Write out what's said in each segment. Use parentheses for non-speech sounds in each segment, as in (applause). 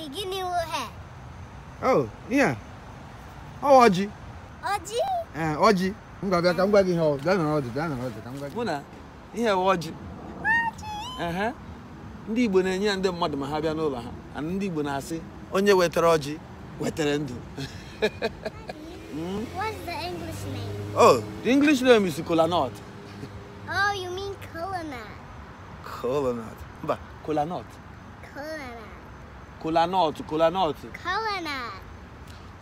nwere gịnị ha? Oh, ihe ọ ọjị. Ọjị? Ee, ọjị. M ga-abịa ka m gwa gị ihe ọ bịa nọrọ ọdụ bịa nọrọ ọdụ ka m gwa gị. Mụ na ihe bụ ọjị. Ndị Igbo na-enye ya ndị mmadụ ma ha bịa n'ụlọ ha ana ndị Igbo na-asị onye wetara ọjị wetara ndụ. What's the English name? Oh, the English name is kola nut. Oh, you mean kola nut. Mba, kola nut. Cola nut, cola nut. Cola nut.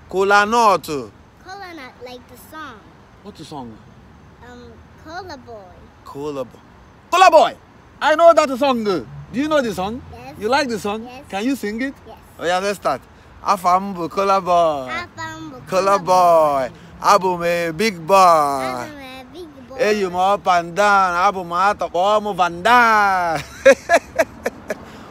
Cola nut. Cola nut, like the song. What's the song? Um, Cola Boy. Cola Boy. Cola Boy! I know that song. Do you know the song? Yes. You like the song? Yes. Can you sing it? Yes. Oh yeah, let's start. Afambu Cola Boy. Afambu Cola Boy. Abum a big boy. Abum a big boy. Hey, you up and down. Abum a top, Van Down. (laughs)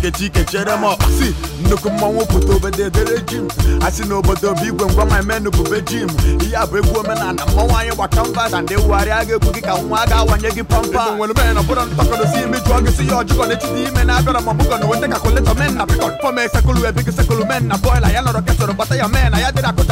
Get up, see. No come on, nkechi kechere m si nnukwu mmọnwụ pụta obededere jim a sị n'obodo bụ igwe ngwa ma menu bube jim ihe a bụ egwu omenala mmọnwụ anyị gbaka mba na ndị wugharịa ga-egwu gị ka nwa ga-awanye gị pampa nwere mere na bụrọ ntakọdosi imi jụọ gị si ya ọjụkọ na-echite ime na abịara ma ọbụkọ na weta kakuletọ men na pikọt fọm esekulu ebigi sekulu men na bọyla ya nọrọ ketụrụ gbata ya men na I dịrị akụta